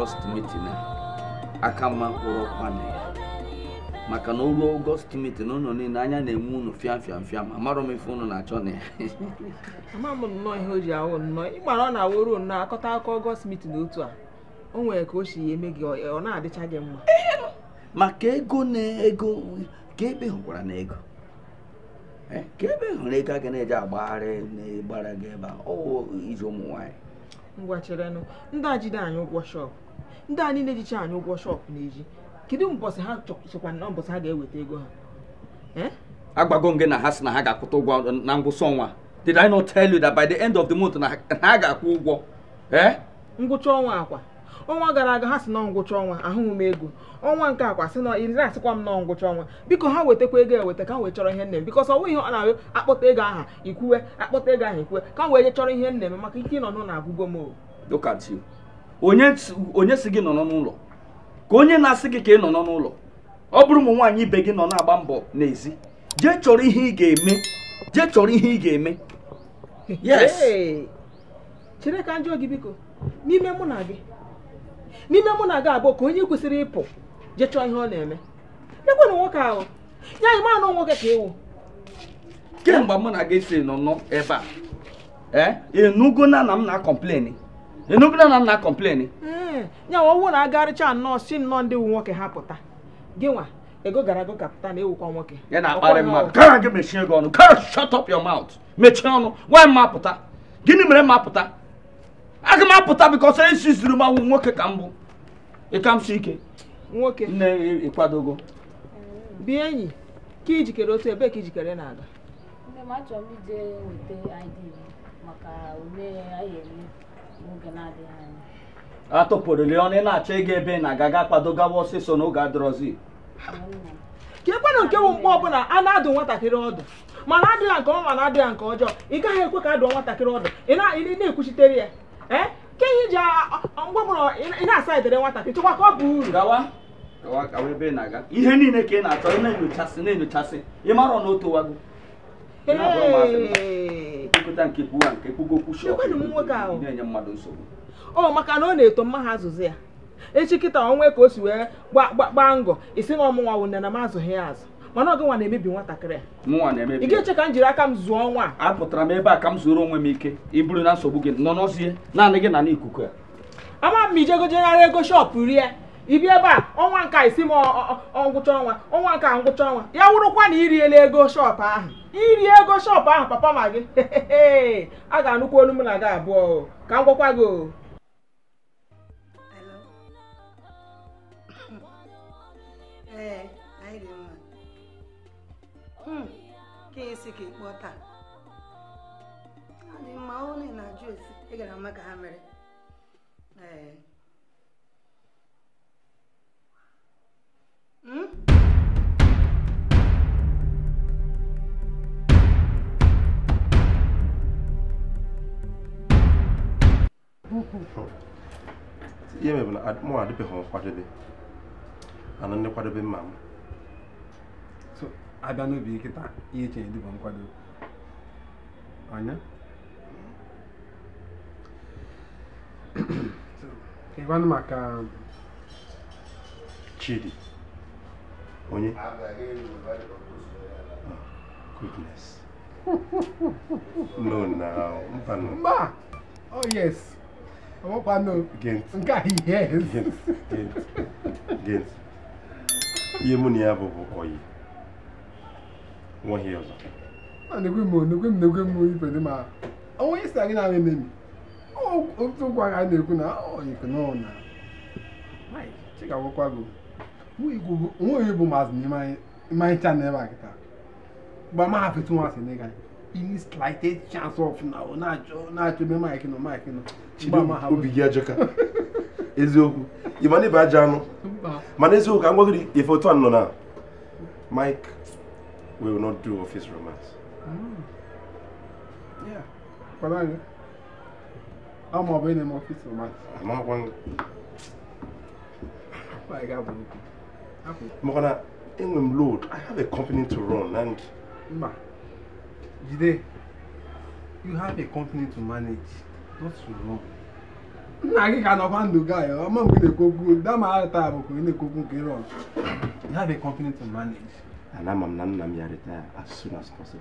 ọgọst mitin a aka mma mkpụrụ ọkwanụ ya maka na oruo ọgọst mitin ụnụ niile anya na-enwe ụnụ fịam fịam fịam amarọ m ife ụnụ na-achọ na ya ama m nnọọ ihe o ji awụ nnọọ ịgbara ọ na-awụrụ nnọọ akọta akọ ọgọst mitin otu a o nwere ka o si eme gị ọ na-adịcha gị mma maka ego na ego ka ebe hụkwara na ego eh, ka ebe hụrụ ego a ga na-eji agbagharị na-agbara gị ebe a ọwụ iji ụmụ nwaanyị ngwacherenụ ndị a jide anyị ụgwọ shọpụ ndị a niile anyị ụgwọ shọpụ na-eji kedu mbọsị ha chọkwa na mbọsị ha ga-eweta ego ha agbago nge na ha sị na ha ga-akwụta ụgwọ na ngwụsị ọnwa did I not tell you that by the end of the month na ha ga-akwụ ụgwọ ngwụcha ọnwa akwa ọnwa gara aga ha si na ngwụcha ọnwa ahụghị m ego ọnwa nke akwa si na asịkwa m nọ ngwụcha ọnwa biko ha wetakwa ego eweta ka wee chọrọ ihe nne m bikọ sọ ihe ọ na-arịọ akpọta ego aha ikwuwe akpọta ego aha ikwuwe ka m wee chọrọ ihe nne m maka ike ịnọ n'ụlọ na m onye si gị nọ n'ụlọ ka onye na-asị gị ka ị nọ n'ụlọ ọ bụrụ ụmụ nwaanyị ibe gị nọ na-agba mbọ n'ezi jee chọrọ ihe ị ga-eme jee chọrọ ihe ị ga-eme chere ka njọ gị biko n'ime mụ na gị n'ime mụ na aga abụọ ka onye kwesịrị ịpụ je chọọ ihe ọ na-eme ekwenụ nwoke ahụ ya anyị manụ nwoke ka ewu kemgbe mụ na gị si nọ ebe a e, enugo na m na-akọmpleni enugo na na m na-akọmpleni hmm, ya ọwụ na agarịcha nnọọ si nnọọ ndị wu nwoke ha pụta gị ego gara aga kapụta na-ewukwa nwoke ya na-akparị mmadụ gara gị mechie gị ọnụ gara shut up your mouth mechie ọnụ nwa m apụta gịnị mere e m apụta aga m apụta bikọsọ esi zuru m nwoke ka m bụ ịkamsụ ike nwoke nne ịkwadogo bie enyi ka ijikere otu ebee ka ijikere na-aga nne m na-adịghị anya atụpụrụli ọnụ ị na-achọ ịga ebe na-aga ga kwadogawa ọsịsọ n'oge adọrọzi ka ekwenụ nke bụ mgbe ọbụla a na-adụ nwatakịrị ọdụ mana adịghị nke ọma mana adịghị nke ọjọọ ị gaghị ekwe ka adụọ nwatakịrị ọdụ ị na-ekwuchitere ya eh? nke ihe ji mgbọbụrụ ị na-asa edere nwata ka ka ọ bụ uru gawa gawa gawa ebe ị na-aga ihe niile ka ị na-achọ ị na-enyochasị na-enyochasị ị mara na o towago ịkụta nke kwuwa nke kwugokwu shọp na-enye mmadụ nsogbu ọ oh, maka na ọ na-eto mma ha azụzụ ya echi kịta onwe ka o si wee gbaa ngọ isi na ọmụnwa wụ nne na m azụghị ya azụ mana nwa na-emebi nwatakịrị a ị ga-eche ka m jiri aka m zụọ nwa a pụtara m ebe a ka m zụrụ onwe m ike iburu na nsogbu gị nọ naanị gị na n'ikuku ya ama m ijegojegharị ego shọpụ rie ibi ebe a ọnwa nke isi m ngwụcha ọnwa ọnwa nke ngwụcha ọnwa ya wụrụkwa na iriela ego shọpụ ahụ iri ego shọpụ ahụ papa ma gị a ga-anụkwa olu m na gị abụọ ka m gwakwa gị Ee. Hmm. ka esi ka ịkpọ taa ọ mma onye na-ajụ esi ị gara ama ka ha mere ee hmm? ihe mebere mụ adịbeghị m nkwadobe ana ndị nkwadobe mma m abịa n'ubi nkịta ihe eche dịbụ nkwado ọnya ịgwanụ maka um, chidi onye goodness no na mba no mba oh yes ọkwa no nke a yes gent gent ihe mụ na ya bụ bụ oyi nwa ihe ọzọ na-ekwe m na-ekwe m na-ekwe m ife dị ma onwe isi anyị na-arị n'emi otu ụkwa a na-ekwu na ọyịkụ n'ọna chigagwakwago nwa bụ maazị n'ime anyị chanel ebe a kịta gba ma hafetu nwa asị n'ịga any slightest chance of na ọ na-achọ ebe maịkị nọ maịkị nọ obi gị ajọka eziokwu ịma na ịba aja anụ mana eziokwu ka ngwa gị ife otu a nọ na mike we will not do office romance. Mm. Yeah. but me. I'm not going to office romance. I'm not going. My God, Morana, England load. I have a company to run and. Ma, Jide, you have a company to manage, not to run. nna gị ka nọkwa ndụ gị ọma mgbe ị na-ekwu okwu dama ara taa bụ ka ị na-ekwu okwu you have a company to manage and I'm a nan nam retire as soon as possible.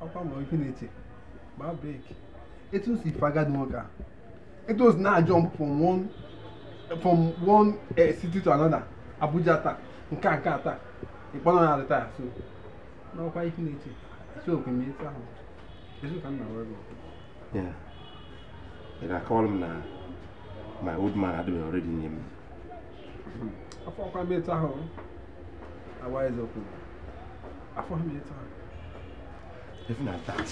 How come we finish it? My break. It was if I got worker. It was now jump from one from one uh, city to another. Abuja attack, Nka Nka attack. Ìpọ́nà náà retire so. Now why finish it? So we meet her. This is kind of work. Yeah. And I call him now. My old man had been already named me afɔkwa mi ta hɔ awa ɛzɛ oku afɔkwa mi ta hɔ. even at that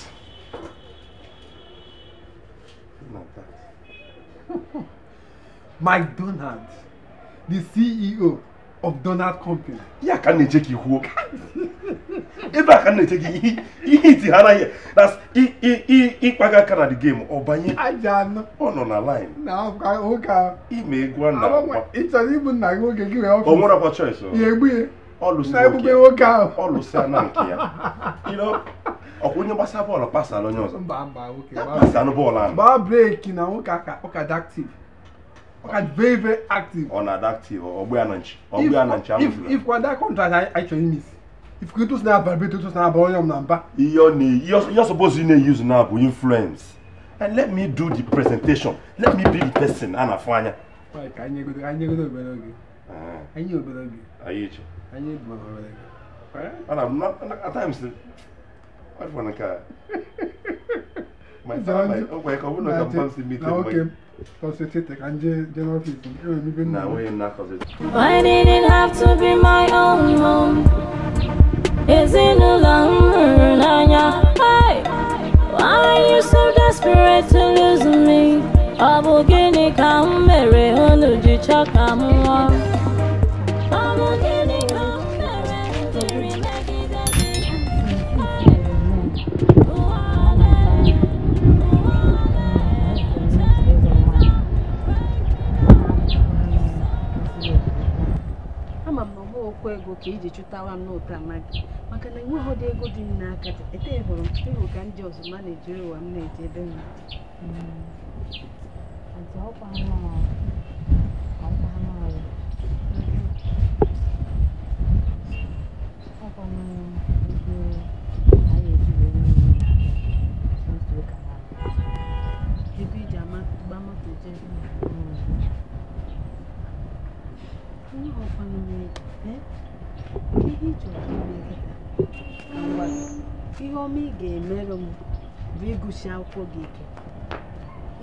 even that mike donald the ceo of Donald Company. Ya ka na-eche gị ihuo. Ebe a ka na-eche gị ihe iti ha na ịkpaga aka na the game ọ banye ọ nọ na line. Na ụka ime e egwu a na e Ị chọrọ ịbụ gị Ọ na nke ya. Ọkwa onye gbasa bọọlụ pasala onye ọzọ. Mba Pasalụ bọọlụ ahụ. na nwoke ụka dị are very very active. ọ̀nà adaptive ananchi ọgbẹ́ ananchi amúfilà. if for that contract i actually miss if kito sinaba vibrate to sinaba onye ọmọ namba. iyọ ni iyọ suppose you na use now bu influence and let me do the presentation let me be the person a na-afụ anya. ka anyị egodo anyị egodo obere oge. anyị obere oge. anyị echi. anyị bụ obere oge. ana m na at times ọ dị nke a. my father my ọgwa ya ka ọ bụrụ na ka mmadụ si meet him. Concentrate and people. Nah, we not Why did it have to be my own home? Is it no longer Hey, why are you so desperate to lose me? Abugini kamere onuji chakamuwa. Igbo ka iji chụtawa m n'ụta amaghị maka na enweghị ego dị m n'aka ete hụrụ ịhụ ka ndị ọzọ ma na-eji ụwa m na-eji ebe m hmm. ebe iji gba moto jee hmm. onye ọkwanụ mere eh? ihe ome ị ga-emerụ m bụ ịgụchi akwụkwọ gị ike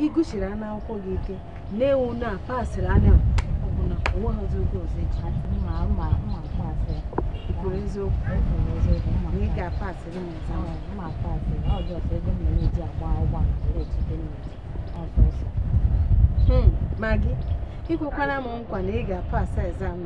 ịgụchiri anụ akwụkwọ gị ike na-ewu na pasịrị anya ọbụla onweghịzi oge ọzọ ikwuru eziokwu na ị ga-apasịrị m ma gị hmm, nkwa na ị ga-apasị ezam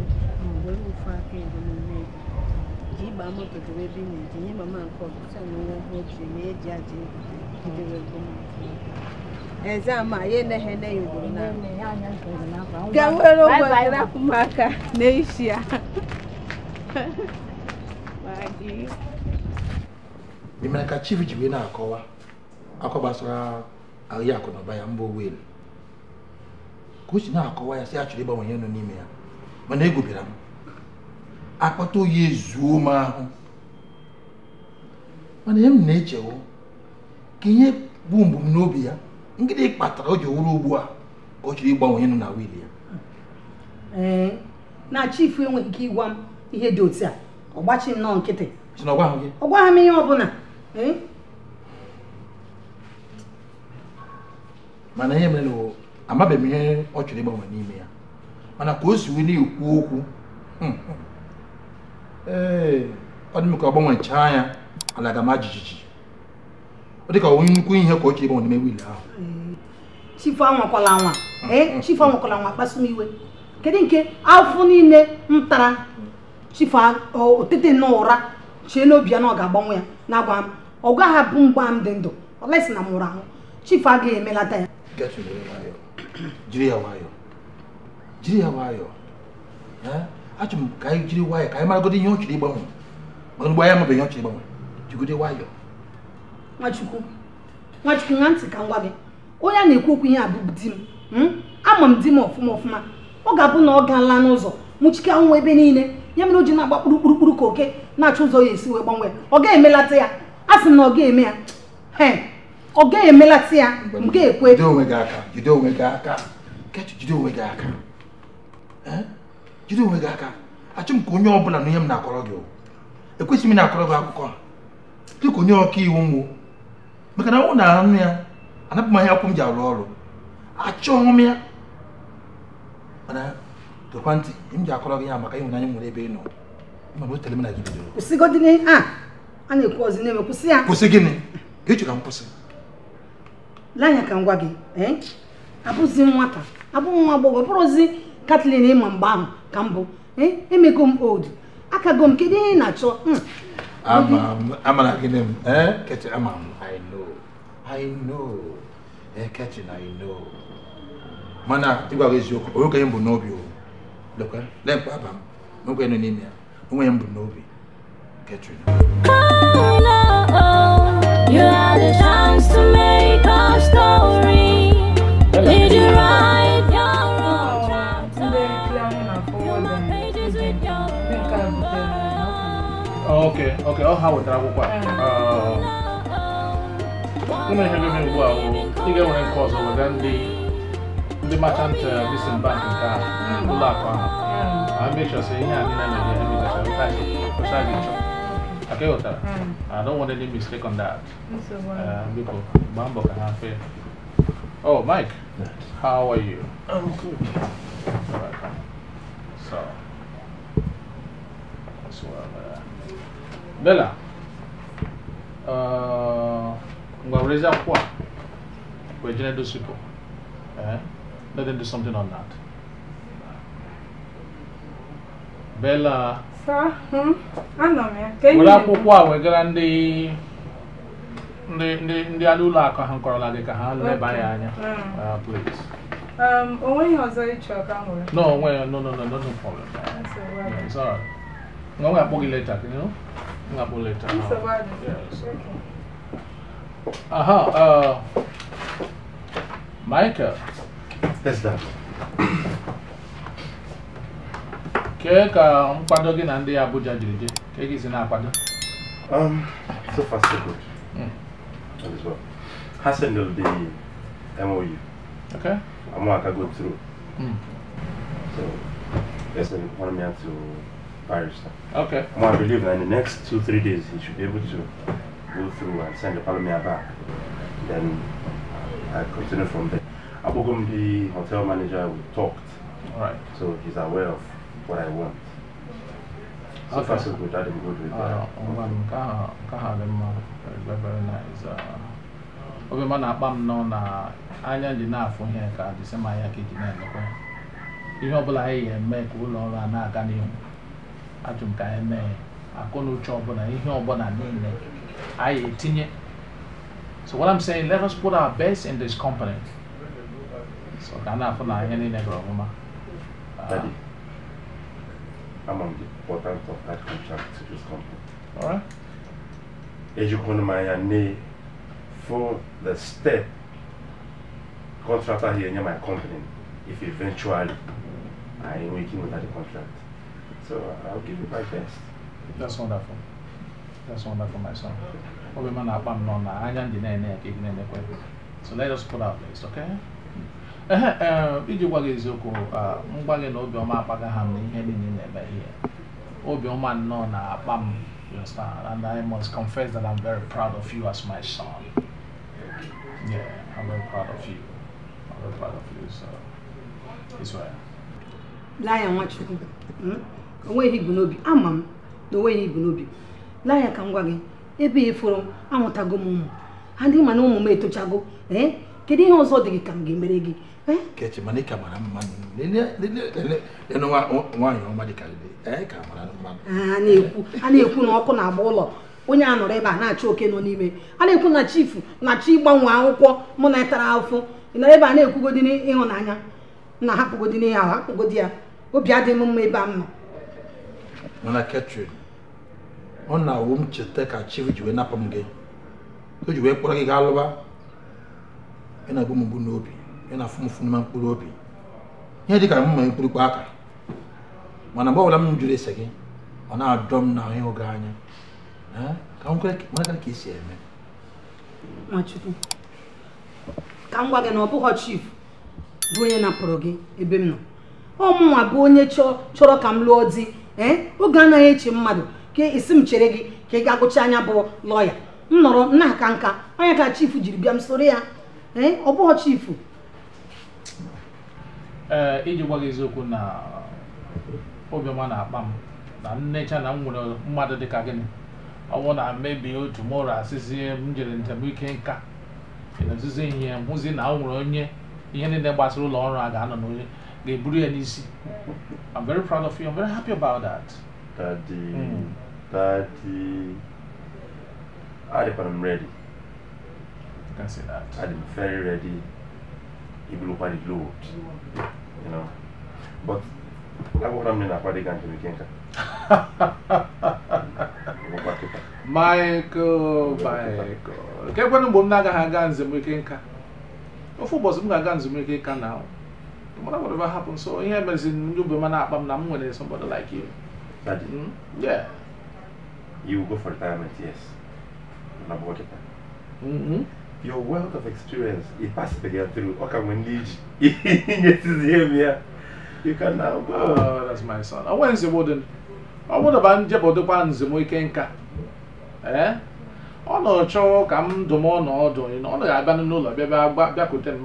ofu aka edo n'ime ji ịgba moto debe ebe ị na-eji nye mama nke ọbụcha na onwe ọhụụ ji na eji aja idebe ezama ya eneghe ne ya ugboro na ga were ụgbọ rapụ m aka n'isi ya ị mere ka chief ji wee na-akọwa akọ gbasara ahịa akụ na ụba ya mba elu, ka o si na-akọwa ya si a chọrọ ịgbanwe ihe nọ n'ime ya mana egwubịara m akpata oyi ezuo m ahụ mana ihe m na-echewo ka ihe bụ mbumnobi ya ngịdị kpatara o ji wụrụ ugbu a ka ọ chọrọ ịgbanwe ihe na wil ya na chief enweghị ike ịgwa m ihe dị otu a ọ gbachi nnọọ nkịtị ọ gwaghị m ihe ọbụla mana ihe mere amabeghị m ihe ọ chọrọ ịgbanwe n'ime ya mana ka o si wee na-ekwu okwu hmm, hmm. ee ọ dị m ka ọ ala ga ma jijiji ọ dị onye nnukwu ihe ka o ji ịgbanwe n'ime wiil ahụ chifu anwakwala anwa mm-hmm. ee eh, chifu anwakwala anwa kpasu m iwe kedu nke afọ niile m tara chifu otete na ụra chie n'obi ya na ọ ga-agbanwe ya na-agwa m ọ gaghị abụ mgba m dị ndụ ọlesi na m ahụ chifu agaghị emelata ya jiri ya nwayọọ jiri ya nwayọọ eh? achọrọ m ka anyị jiri nwayọọ ka anyị maragodo ihe ọ chọrọ ịgbanwe mana ugbo anyị amabeghị ọ chọrọ ịgbanwe jigide nwayọọ nwachukwu nwachukwu nwa ntị ka m gwa gị onye a na-ekwu okwu ihe a di m hmm? ama m di m ọfụma ọfụma ọ ga-abụ na ọ gaala n'ụzọ nwụchike anwụ ebe niile ya mere o ji na-agba kpurukpurukpuru ka oke na-achọ ụzọ ya esi wee gbanwee ọ ga-emelata ya a sị m na ọ ga-eme ya ọ ga-emelata ya m ga-ekwe jide onwe gị aka jide onwe gị aka jide onwe gị aka jide onwe gị aka achọ m ka onye ọ na ihe m na-akọrọ gị ekwesịghị m na-akọrọ gị akwụkwọ dịka onye ọka iwu m maka na ọ na nụ ya anapụ m ahịa akwụkwọ m ji arụ ọrụ achọghị m ya mana tokwa ntị m ji akọrọ gị ya maka ịhụnanya nwere ebe ị nọ mana m kwụsị gịnị ka m ka m gị eh? abụzi nwata ka mbụ eh, emego m old akago m kedu ihe ị na-achọ hmm. m mana ịgwa gị eziokwu onwe onye m bụ n'obi o aba m onwe nọ n'ime ya onwe ya Okay, okay, ọ ha wetara akwụkwọ a ụmụ ihe bebe ugbu a ị ga-enwere nke ọzọ wega ndị ndị machant bisin bank nke a ụlọ akụ ahụ mechọsị ihe a niile mere ihe mechachara ụta gị kwụcha gị chọ Okay. Okay. Mm. I don't want any mistake on that biko gbaa mbọ ka ha fee Oh, Mike, how are you? I'm good. All right. So, as well. Bella, uh, ungaweza kuwa we're going to do SQL. Eh? Ờ, let them do something on that. Bella. Sir, hmm? Anọ m ya. Were akwụkwọ a wegara ndị ndị ndị ndị ala ụlọ akụ ha kọrọla gị ka ha leba anya anya. Uh, please. Um, onweghị ọzọ ịchọ e ka m nwere. No, onwe no no no no no problem. That's all right. Yeah, it's all right. Nga nwe akpọ gị you know? nggak boleh terlalu. Yes. Aha, uh, Michael. Yes, Dad. um, ka nkwado gị na ndị Abuja jiri je, si na Um, so far so good. Mm. as well. has sendel the MOU. Okay. I'm going to go through. Mm. So, yes, I want me to Paris. Okay. Well, I believe that in the next two, three days, he should be able to go through and send the parliament back. Then uh, I continue from there. Abogum, the hotel manager, we talked. All right. So he's aware of what I want. So okay. far, so good. I didn't go to it. Very, very nice. obi ma na-akpa m nọ na anya ji na-afụ ihe ka dịsị ma ya ka eji na-emekwa ihe ọbụla anyị ga-eme ka ụlọ ọrụ na-aga n'ihu ajụ ka anyị mee ọbụla ihe ọbụla niile anyị etinye so what i'm saying let us put our best in this company so ka a na-afụ na ihe niile gara ọmụma amam the importance of that contract to this company all right ejikwana m anya nee for the step contractor here near my company if eventually I am working without the contract So I'll give you my best. That's wonderful. That's wonderful, my son. So let us put our best, okay? Eh, iji gwa gị eziokwu ah, mgba gị na obiọma akpaga ha na ihe niile na-eme ihe obiọma nnọọ na-akpa m and I must confess that I'm very proud of you as my son yeah I'm very proud of you I'm very proud of you so it's well Lion, what onweghị ibu n'obi ama m na onweghị ibu n'obi laa ya ka m gwa gị ebe a eforo amụtago m ụmụ ha ndị na ụmụ m etochago ee eh? kedu ihe ọzọ dị gị ka m ga-emere gị eh? kechi na-ekwu a na-ekwu na ọkụ na-agba ụlọ onye a nọrọ ebe a na-achọ oke nọ n'ime a na-ekwu na chifu na chi gbanwe akwụkwọ mụ na ịtara afụ nọrọ ebe a na-ekwugodị ịhụnanya na hapụgodi ya ahụ hapụgodi ya obi adịghị m mma ebe a m mana ketrin ọ na-awụ m cheta ka chief ji wee napụ m gị o ji wee kpọrọ gị gaa lụba ị na-agbu m mgbu n'obi ị na-afụ m fụ n'ime mkpụrụ obi ihe dị ka m ma mkpụrụkpọ aka mana mgbe ọbụla m jụrụ ese gị ọ na-adọ m na ahụ oge anya ka m kwere mara ka esi eme Nwachukwu ka m gwa gị na ọ bụghị chief bụ onye napụrụ gị ebe m nọ ọ mụnwa bụ onye chọrọ ka m lụọ di ee eh? oge anaghị eche mmadụ ka esi m chere gị ka ị ga-agụcha anya bụ lọya m nọrọ nna aka nka onye ka chifu jiri bịa m soro ya ee eh? ọ bụghị chifu ee eh, iji gwa gị eziokwu na obiọma na-akpa m na nnecha na m nwere mmadụ dịka gịnị ọ bụ na mebie otu mụrụ asịzi m jere njem ike nka e ezizi ihe mụzi na o nwere onye ihe niile gbasara ụlọ ọrụ a ga-anọ n'onye the Eburi NEC. I'm very proud of you. I'm very happy about that. Daddy, mm. Daddy, Adip, I'm ready. You can say that. I'm very ready. Even look at the load, you know. But I want to mean about the country we can't. Michael, Michael. Kebwe nụ mgbe m na-agaghị aga nzemike nka ofu ụbọchị m ga-aga nzemike nka na ahụ well, whatever happened. So in here, but in you be man up, I'm not Somebody like you. Daddy. Mm? Yeah. You go for retirement, yes. I'm working. Mm-hmm. Your wealth of experience, it passed the girl through. Okay, when lead. Yes, is here. You can now go. Oh, that's my son. I want to the warden. Eh? I want would have been able to go to the Eh? Come ọ na-achọ ka m dụm ọ n'ọdụ ọ na-abịa n'ụlọ bịa bịa bịakwute m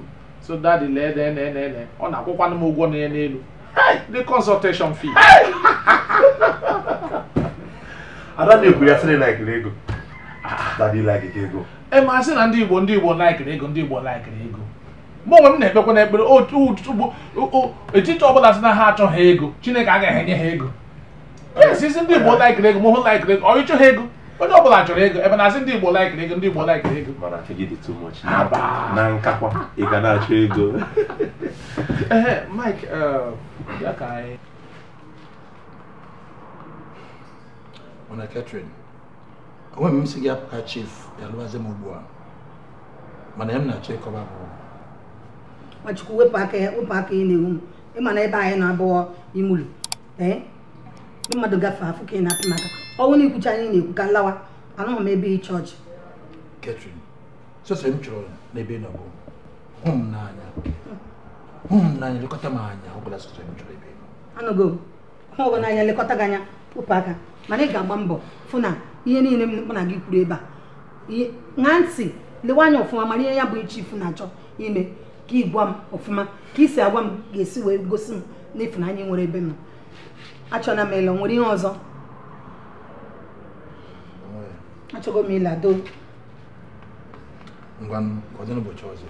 so daddy lee de ene ene ene ọ na-akwụkwanụ m ụgwọ na ya n'elu the consultation fee ada na-ekwu ya sịrị laikiri ego daddy ike ego e ma sị na ndị igbo ndị igbo laikiri ego ndị igbo laikiri ego mụ onwe m na-ekpekwa na ekpere etiti ọbụla sị na ha achọghị ego chineke agaghị enye ha ego yes isi ndị igbo laikiri ego m hụ laikiri ego ọ ịchọghị ego onye ọ bụla chọrọ ego ebe na-asị ndị Igbo laikiri ego ndị Igbo laikiri ego mana kegide too much na nkakwa ị ga na-achọ ego ee Mike ya uh, ka anyị mana katrin onwe m si gị apụ chief ya lụwazi m ugbu a mana ya m na-achọ ịkọba bụ nwachukwu wepụ aka ya wepụ aka ya na-ewu m ịma na ebe anyị na-abụọ imulu ee ndị mmadụ gafee afọ ka ị na-apụ maka ọnwụ na ikwucha anyị na-ekwu ka nlawa anụghị m ebe ị chọọchị Catherine sọsọ m chọrọ n'ebe ị nọ hụ m n'anya hụ m n'anya lekọta m anya ọbụla sọsọ m chọrọ ebe anụgo m hụ ọgọ n'anya lekọta gị anya wụpụ aka mana ị ga-agba mbọ fụ na ihe niile m na gị kwuru ebe a ṅaa ntị lewe anya ọfụma mana ihe ya bụ iche ifu na-achọ ime ka ị gwa m ọfụma ka ị isi agwa m ga-esi wee gosi m n'ịfụnanya nwere ebe m achọna m ele nwere ihe ọzọ nó cho achọgo m ịlado ngwanụ ka ọ dị n'ụbọchị ọzọ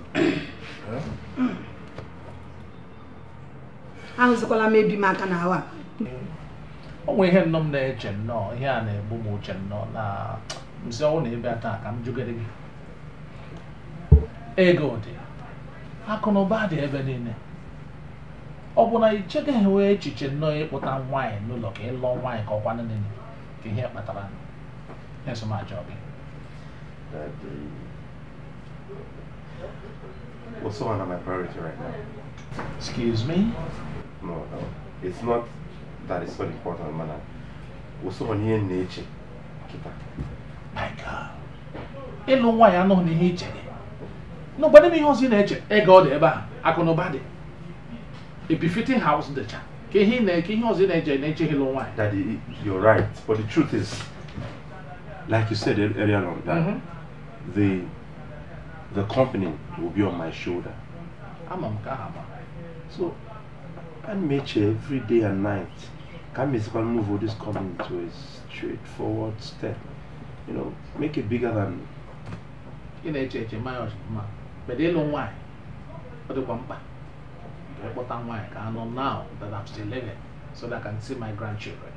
ahụzikwala m ebi m aka n'ahụ a o nwere ihe nnọọ m na-eche nnọọ ihe a na-egbu m uche nnọọ na nsi ọnwụ na ebe taa ka m jụgere gị ego dị akụ na ụba dị ebe niile ọ bụ na ichegaghị wee echiche nnọọ ịkpụta nwaanyị n'ụlọ ka ịlụọ nwaanyị ka ọkwa niile ka ihe kpatara That's my job is. That the what's one of my priority right now? Excuse me? No, no. It's not that it's not important, man. What's one here nature? Kita. My God. I nwaanyị anọghị n'ihe iche dị. N'ụgbọdị m ihe ọzọ ị na-eche, ego I dị ebe it. akụ na ụba dị. A befitting house dịcha. Ka ihe ọzọ ị nature. na-eche ịlụ nwaanyị. Daddy, you're right, but the truth is, like you said earlier on, that mm -hmm. the the company will be on my shoulder. I'm a Mkahama. So, and Meche every day and night, Kamis can move this company to a straightforward step. You know, make it bigger than. In HH, my ma. But they don't why. But they want back. But I'm why. I know now that I'm still living so that I can see my grandchildren.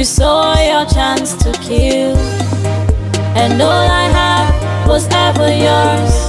you saw your chance to kill, and all I have was ever yours.